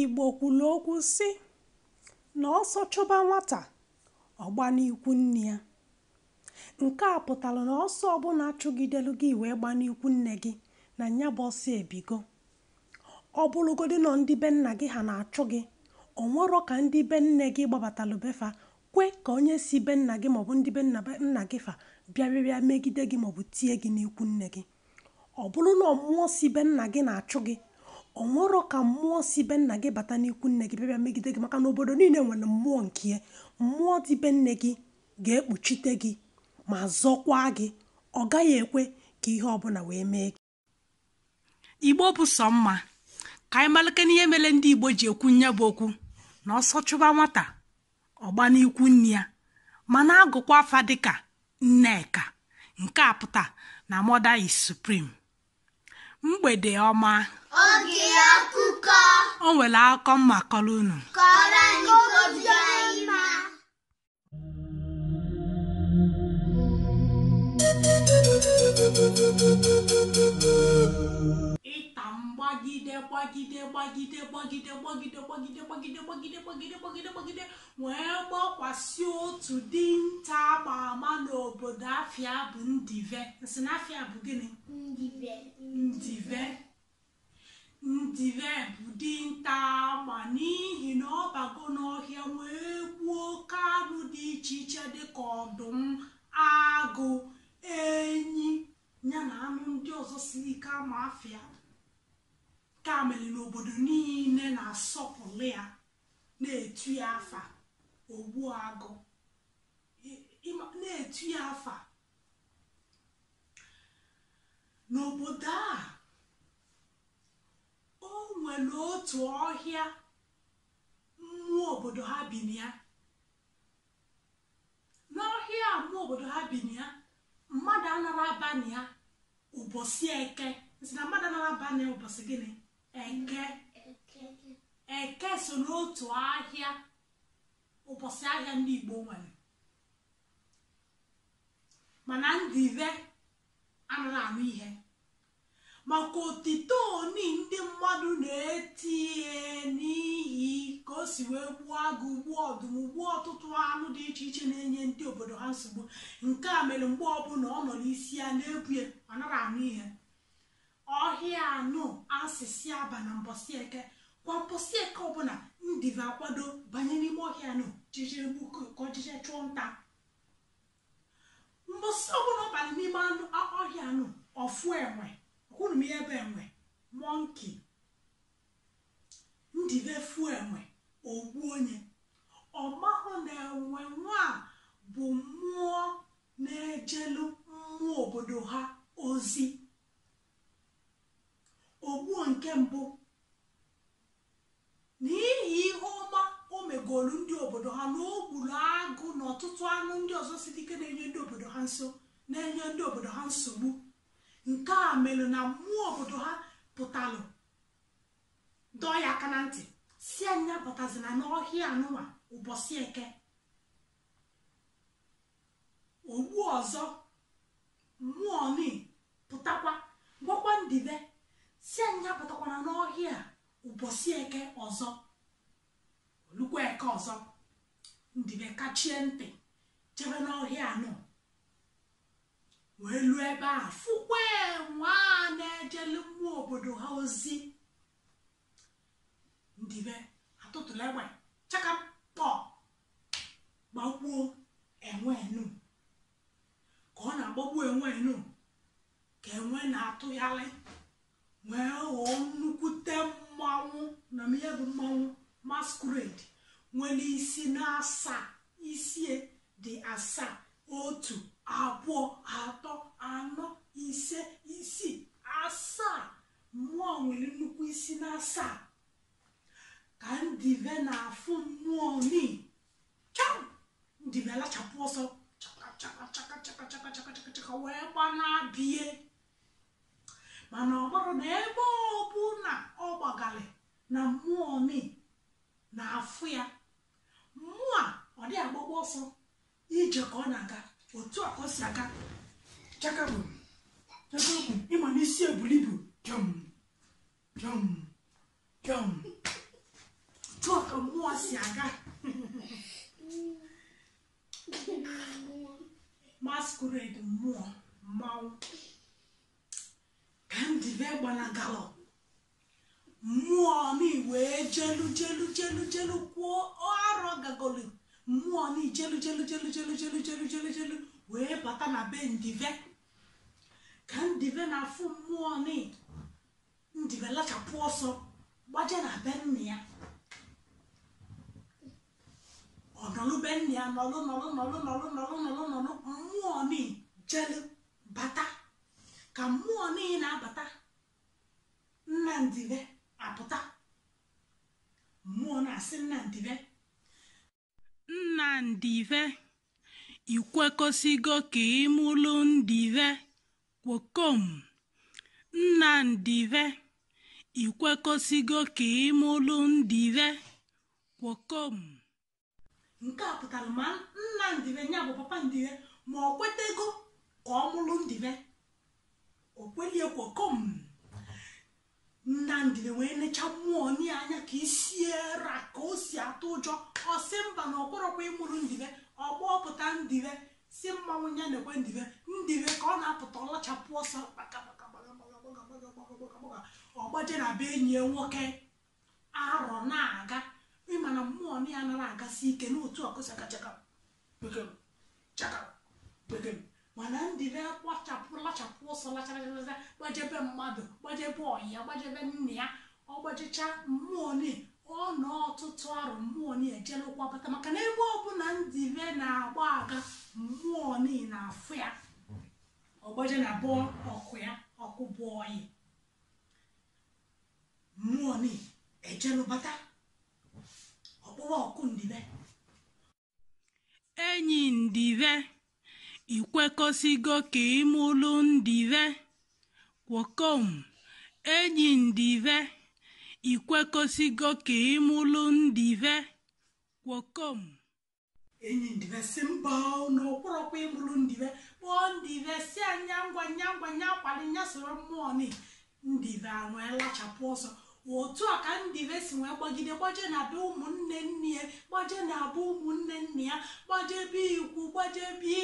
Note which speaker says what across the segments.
Speaker 1: Igbo kwulu okwu si na ọsọ chụba nwata, ọ nne ya. Nke a pụtara na ọsọ ọbụla chụgidelu gị wee gbanikwu nne gị na nya bụ ọsọ ebigo. Ọ nọọ ndị be nna gị ha na-achụ gị, o ka ndị be nne gị gbabatalụ be kwe ka onye si be nna gị maọbụ ndị be nna nna gị fa bịarịa megide gị maọbụ tie gị n'ikwu nne gị. Ọ bụrụ si be nna gị na-achụ gị ọ nwụrọ ka mmụọ si be nna gị bata n'ikwu nne gị bịa megide gị maka na obodo niile nwere mmụọ nke ya mmụọ dị be nne gị ga-ekpuchite gị ma zọkwa gị ọ gaghị ekwe ka ihe ọbụla wee mee gị igbo bụ sọ mma ka anyị malite n'ihe mere ndị igbo ji ekwu nye bụ okwu na ọsọ chụba nwata ọgba n'ikwu nne ya na agụkwa afa dịka nneka nke a pụta na mother is supreme mgbede ọma oge akụkọ o nwere akụkọ mma kọrọ unu kọrọ Thank you. gbagide gbagide gbagide gbagide gbagide gbagide gbagide gbagide gbagide gbagide wee gbakwasị otu dinta ama ama n'obodo afia bụ ndive na bụ gịnị ndive ndive bụ dinta ama n'ihi na ọ bago n'ọhịa wee gbuo oke anụ dị iche iche dịka ọdụm agụ enyi ya na anụ ndị ọzọ siri ike ama afịa ka mere na obodo niile na-asọpụrụ ya na-etu ya afa ogbu agụ na-etu ya afa n'obodo a o nwere otu ọhịa mmụọ obodo ha bi na ya n'ọhịa mmụọ obodo ha bi na ya mmadụ anara abana ya ụbọchị eke si na mmadụ anara abana ụbọchị gịnị eke eke so n'otu ahịa ụbọchị ahịa ndị igbo nwere mana ndị ive anaghị anụ ihe maka otito oni ndị mmadụ na-eti n'ihi ka o si wee gbuo agụ ugbu ọdụm ugbu ọtụtụ anụ dị iche iche na-enye ndị obodo ha nsogbu nke a mere mgbe ọbụla ọ nọ n'isi ya na-ebue ọ naghị anụ ihe ọhịa anụ asịsị aba na mbọsị eke kwa mbọsị eke ọbụla ndive akwado banye n'ime ọhịa anụ jijiri gbuko ka ọjije chụọ nta mbọsị ọbụla ọbala n'ime anụ ọhịa anụ ọfụ enwe ọkwụrụ m ihe ebe enwe mọnki ndive fuo enwe ogbu onye ọmahụ na enwe nwa bụ mmụọ na-ejelu mmụọ obodo ha ozi ogbuo nke mbụ n'ihi ihe ọma o megoolu ndị obodo ha na o gburu agụ na ọtụtụ anụ ndị ọzọ si dike na-enye ndị obodo ha nso na-enye ndị obodo ha nsogbu nke a mere na mmụọ obodo ha pụtalụ dọọ ya aka na ntị si anya na n'ọhịa anụwa ụbọchị eke ogbu ọzọ mmụọ ni pụtakwa gwakwa ndibe si anyị apụtakwana n'ọhịa ụbọchị eke ọzọ olukwa eke ọzọ ndibe kachie ntị jebe n'ọhịa anọ wee lu ebe a fụkwa nwa na-ejelu mmụọ obodo ha ozi ndibe atụtụlụ egbe chakapọ gbagbuo enwe enu ka ọ na-agbagbu enwe enu ka enwe na-atụgharị wee ghọọ nnukwute mmanwụ na ihe bụ mmanwụ masquerade nwere isi na-asaa isie dị asaa otu abụọ atọ anọ ise isii asaa mmụọ nwere nnukwu isi na-asaa ka ndive na-afụ mmụọ ni cham ndive lachapụ ọsọ chaka chaka chaka chaka chaka chaka chaka wee gbanabie mana ọ bụrụ na ebe ọ bụ na ọ gbagali na mmụọ mi na-afụ ya mmụọ a ọ dị agbagba ọsọ ije ka ọ na-aga otu a ọ si aga chakabụ chakabụ ịma n'isi ebulibu jọm jọm jọm otu a ka mmụọ si aga agalọ mmụọ mi wee jelu jelu jelu jelu kwuo ọrụ gagoli mmụọ mi jelu jelu jelu jelu jelu jelu jelu jelu wee bata na be ndive ka ndive na-afụ mmụọ mi ndive lachapụ ọsọ gbaje na be nna ya be nna ya nọlụ nọlụ nọlụ nọlụ nọlụ nọlụ nọlụ mmụọ ni jelu bata ka mmụọ niile na-abata nnamdị apụta mmụọ na-asị nnamdị be nnamdị be ikwekọsigo ka ịmụlụ ndị kwokom nnamdị be ikwekọsigo ka ịmụlụ ndị kwokom nke a pụtara ma nna ndibe ya bụ papa ndị ma ọ kwetego ka ọ mụlụ ndị okwelie kwokom nnamdị na-enwee enecha mmụọ nye anya ka isiera ka o si atụ ụjọ ọsị mba na ọkpọrọkwa ịmụrụ ndibe ọgbọpụta ndibe si mmanwụ ya na-ekwe ndibe ndibe ka ọ na-apụta ọlachapụ ọsọ ọgbaje na be enyi nwoke arọ na-aga ịmana mmụọ na ya nara agasi ike n'otu ọkụsa ka chaka bekee mana ndị na-akwachapụ lachapụ ọsọ lachara gbajebe mmadụ gbajebe ọya gbajebe nna ya ọ gbajicha mmụọ ni ọ nọ ọtụtụ arụ mmụọ ni ejela ụkwabata maka na ebe ọ ndị be na-agba aga mmụọ ni na-afụ ya ọgbaje na bụọ ọkụ ya ọkụ bụ oyi mmụọ ni ejelụbata ọkpụwa ọkụ ndibe enyi ndibe ka ikwekọsigo k'imulundive kwokom enyindive ikwekọsigo k'imulundive kwokom enyindive simba na ụkpụrụkwa ịmụrụ ndive kpọọ ndive si anya ngwa nya ngwa nya akwali nya soro mmụọ ni ndive anwee lachapụ ọsọ otu a ka ndị be si nwee gbagide gbaje na be ụmụnne nne ya gbaje na abụ ụmụnne nne ya gbaje ebe ikwu gbaje ibe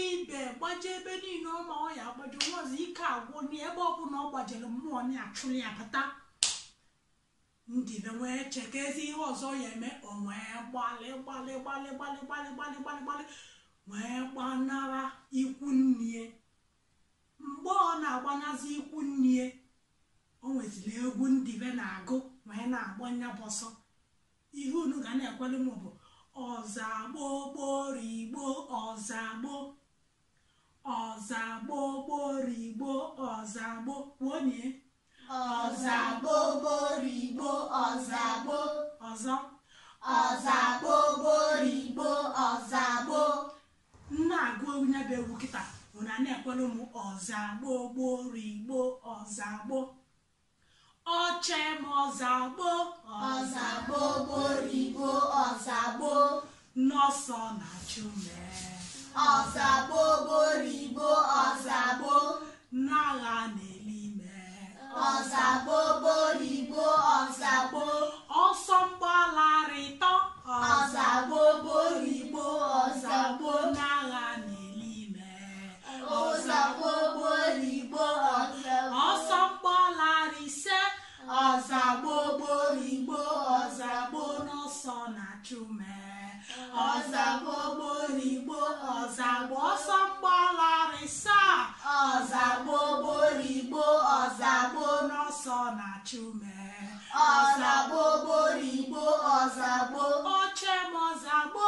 Speaker 1: gbaje ebe niile ọma ọ ya agbaje nwaọzọ ike agwụ n'ebe ọbụla ọ gbajere mmụọ na-achụrụ ya bata ndị be wee chekezi ihe ọzọ ya eme o wee gbalị gbalị gbalị gbalị gbalị gbalị gbalị gbalị wee gbanara ikwu nne mgbe ọ na-agbanazi ikwu nne o nweziri egwu ndị be na-agụ wee na agbọ nyabụ ọsọ ihe unu ga na-ekwelu m bụ ọzagbo gborigbo ọzagbo ọzagbo gborigbo ọzagbo wonye ọzagbo gborigbo ọzagbo ọzọ
Speaker 2: ọzagbo gborigbo
Speaker 1: ọzagbo na-agụ onye bụ egwu kịta ụna na-ekwelu m ọzagbo ọzagbo Achọe m ọzagbo ọzagbo borigbo ọzagbo n'ọsọ na achọ mee ọzagbo borigbo ọzagbo n'agha na-eli mee ọzagbo borigbo ọzagbo ọsọ achụme
Speaker 2: ah. ọzagbo gborigbo
Speaker 1: ọzagbo ọsọ mgbalarịsa ọzagbo gborigbo ọzagbo n'ọsọ na-achụme ọzagbo gborigbo ọzagbo oche m ọzagbo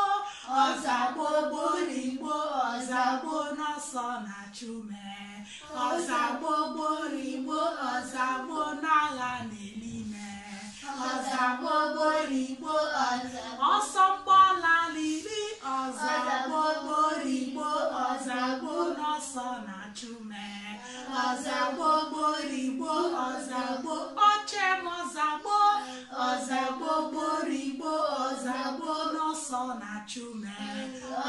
Speaker 1: ọzagbo gborigbo n'ọsọ na-achụme ọzagbo gborigbo ọzagbo n'agha na-ele ọzọgbogborigbo ọsọ mgbọla lili ọzọgbogborigbo ọzọgbo n'ọsọ na-achụ mee ọzọgbogborigbo ọzọgbo oche mọzagbo ọzọgbogborigbo ọzọgbo n'ọsọ na-achụ mee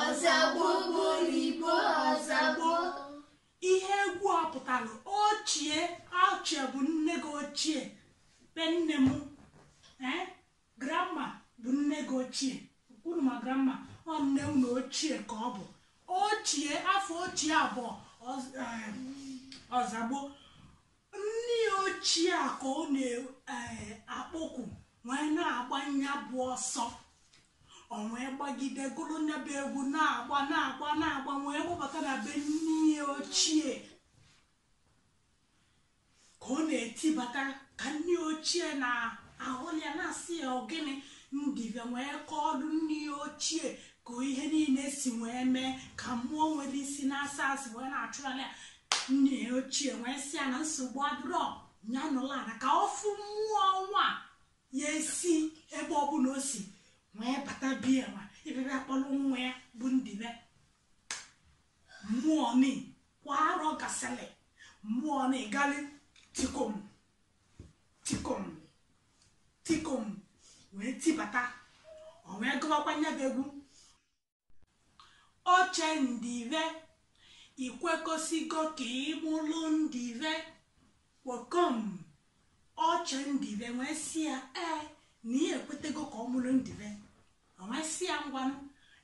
Speaker 1: ọzọgbogborigbo ọzọgbo ihe egwu ọ pụtara ochie ochie bụ nne gị ochie be nne m Eh? Gramma bụ nne gị ochie unu ma grandma ọ nne unu ochie ka ọ bụ ochie afọ ochie abụọ eh, ọzagbo nne ochie ka ọ na-akpọkwu eh, wee na-agba ya bụ ọsọ ọ wee gbagide gụrụ egwu na-agba na-agba na-agba wee gbabata na be nne ochie ka ọ na-etibata ka nne ochie na ahụlia na-asị ya ogene ndịbịa wee kọọlụ nne ya ochie ka ihe niile si wee mee ka mmụọ nwere isi na-asa asị wee na-achụrala ya nne ya ochie wee si ya na nsogbu adịrọ ya nụla ala ka ọfụ mmụọ nwa ya esi ebe ọbụla o si wee bata biya ma ịbịabịa kpọrọ nwa ya bụ ndịbịa mmụọ ni kwa arọ mmụọ na-egali tikom tikom tikom wee tibata o wee gụwakwa nya bụ egwu oche ndive ikwekọsigo ka ịmụlụ ndive kwokom oche ndive wee si ya ee na ihe ekwetego ka ọ mụrụ ndive o wee si ya ngwa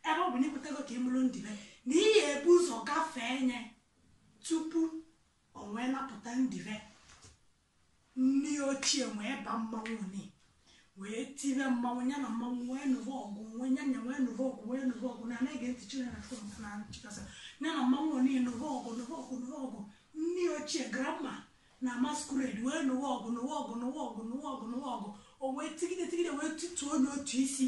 Speaker 1: ebe ọ bụ na ekwetego ka ịmụrụ ndive na ihe ebu ụzọ gafee nye tupu o wee napụta ndive nne ochie wee ba mmanwụ ni wee tibe mmanwụ ya na mmanwụ wee ọgụ wee nya nya wee ọgụ na anaghị ege ntị na chikasa ya na mmanwụ ọgụ ndị ochie grama na masquerade wee nụrụ ọgụ nụrụ ọgụ nụrụ o isi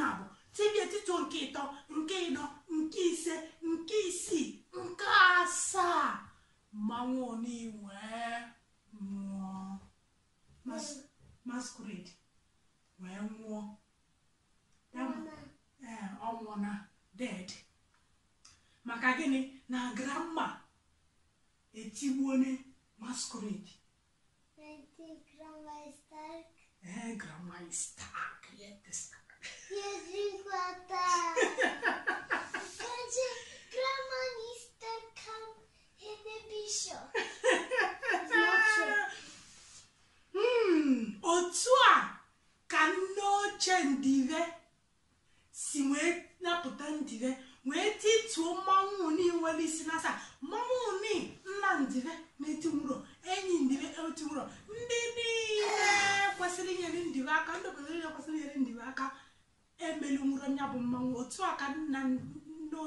Speaker 1: na abụ tibie tituo nke ịtọ nke ịnọ nke ise nke isii nke asaa mmanwụ nwee nwụọ mas masquerade wee nwụọ ee ọ nwụọ na dead maka gịnị na grandma etigbuone masquerade ee grandma is stark yet stark yes, grandma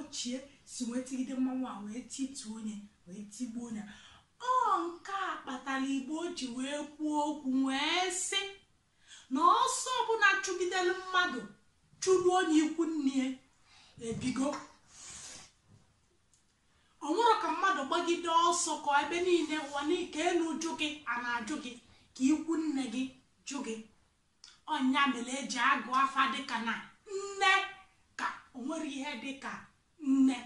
Speaker 1: ochie si wee tigide mmanwụ a wee tituo onye wee tigbuo onye ọ nke a kpatara igbo ji wee kwuo okwu wee sị na ọsọ ọbụla chụgidere mmadụ chụrụ onye ikwu nne ebigo ọnwụrụ ka mmadụ gbagide ọsọ ka ebe niile ụwa ka elu jụ gị a na-ajụ gị ka ikwu nne gị jụ gị ọnya mere eji agụ afa dịka na nne ka o ihe dịka ne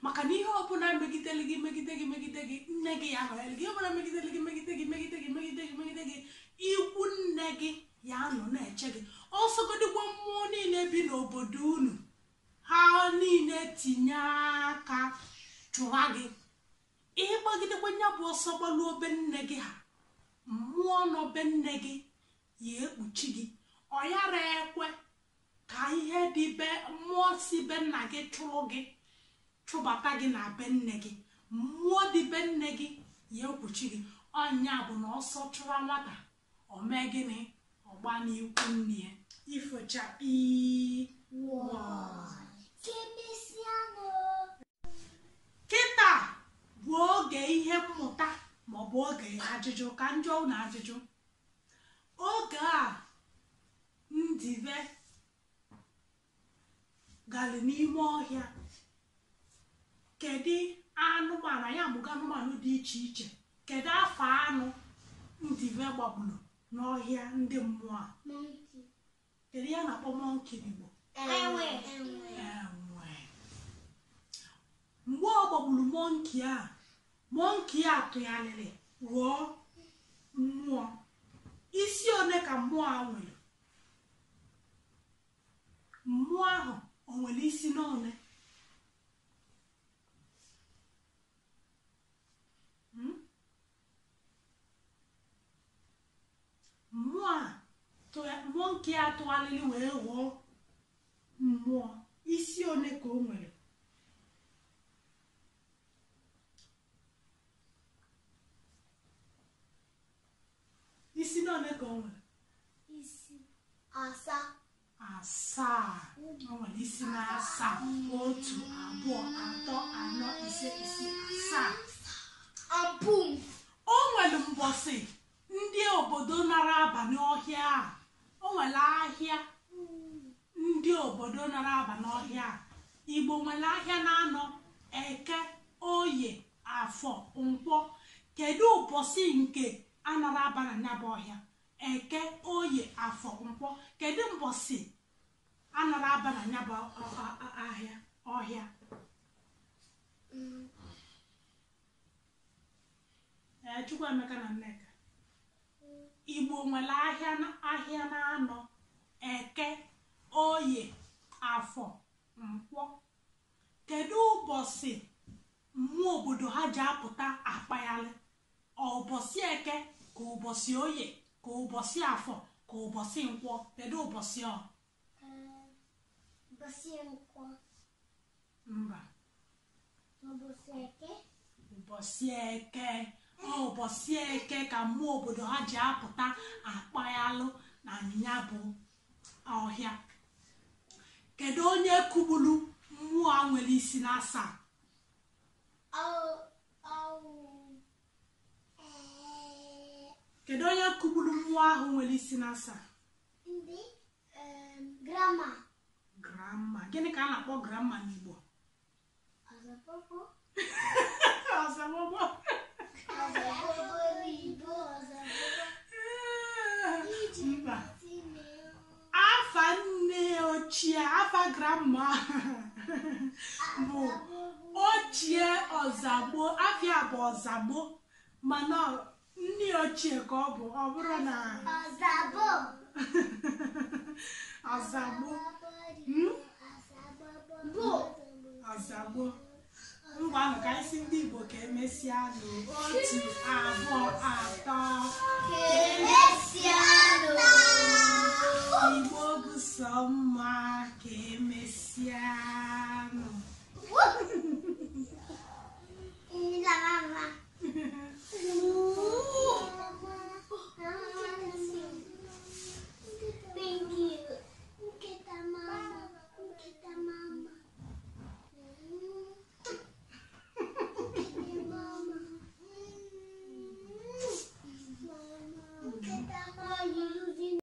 Speaker 1: maka na ihe ọbụla megidere gị megide gị megide gị nne gị ya nọnyere gị ọbụla megidere gị megide gị megide gị megide gị megide gị ikwu nne gị ya nọ na-eche gị ọsọgodikwa mmụọ niile bi n'obodo unu ha niile tinye aka chụwa gị ịgbagidekwa nya bụ ọsọ gbalụ obe nne gị ha mmụọ n'obe nne gị ya ekpuchi gị ọ yara ekwe ka ihe dị be mmụọ si be nna gị chụrụ gị chụbata gị na be nne gị mmụọ dị be nne gị ya ekwuchi gị ọnya bụ na ọsọ chụwa nwata mee gịnị ọgba n'ikwu nne ya ifocha kịta bụ oge ihe mmụta maọbụ oge ajụjụ ka njọ na ajụjụ oge a ndibe. mụgalị n'ime ọhịa kedu anụmanụ anyị amụga anụmanụ dị iche iche kedu afọ anụ ndị gbagburu n'ọhịa ndị mmụọ a kedu ya na-akpọ mọnki enwe mgbe ọ gbagburu mọnki a mọnki a tụgharịrị ghọọ mmụọ isi one ka mmụọ a nwere mmụọ ahụ o nwere isi n'ole hmm? mmụọ nke ya atụgharịrị wee ghọọ mmụọ isi one ka o nwere isi n'one ka o nwere isi asaa asaa wọn ní na asaa otu abụọ atọ anọ ise ise asaa abụm o nwere mbọsị ndị obodo nara abalị ọhịa a o nwere ahịa ndị obodo nara abalị ọhịa a igbo nwere ahịa na-anọ eke oye afọ nkwọ kedu ụbọchị nke anara abalị n'aba ọhịa eke oye afọ nkwọ kedu mbọsị anara aba na ya bụ ahịa ọhịa mm. Chukwuemeka na Nneka Igbo nwere ahịa na anọ eke oye afọ nkwọ kedu ụbọchị mmụọ obodo ha ji apụta akpagharị ọ eke ka ụbọchị oye ka ụbọchị afọ ka ụbọchị nkwọ kedu ụbọchị ọ nkwo mba ụbọchị eke ụbọchị eke ọ ụbọchị eke ka mmụọ obodo ha ji apụta akpaghalụ na anyịnya bụ ọhịa kedu onye kugburu mmụọ a nwere isi na asaa kedu onye kugburu mmụọ ahụ nwere isi na asaa grama gịnị ka a na-akpọ grama n'igbo afa nne ochie afa grama bụ ochie ọzagbo afia bụ ọzagbo mana nne ochie ka ọ bụ ọ bụrụ na ọzagbo ka gboo ahụ ka anyị ndị Igbo ka emesịa n'otu abụọ